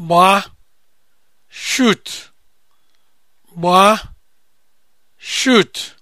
gbaa shoot gbaa shoot